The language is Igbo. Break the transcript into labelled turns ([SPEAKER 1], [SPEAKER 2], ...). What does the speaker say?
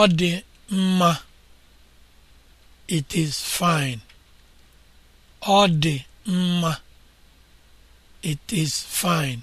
[SPEAKER 1] ọ dị mma it is it is fine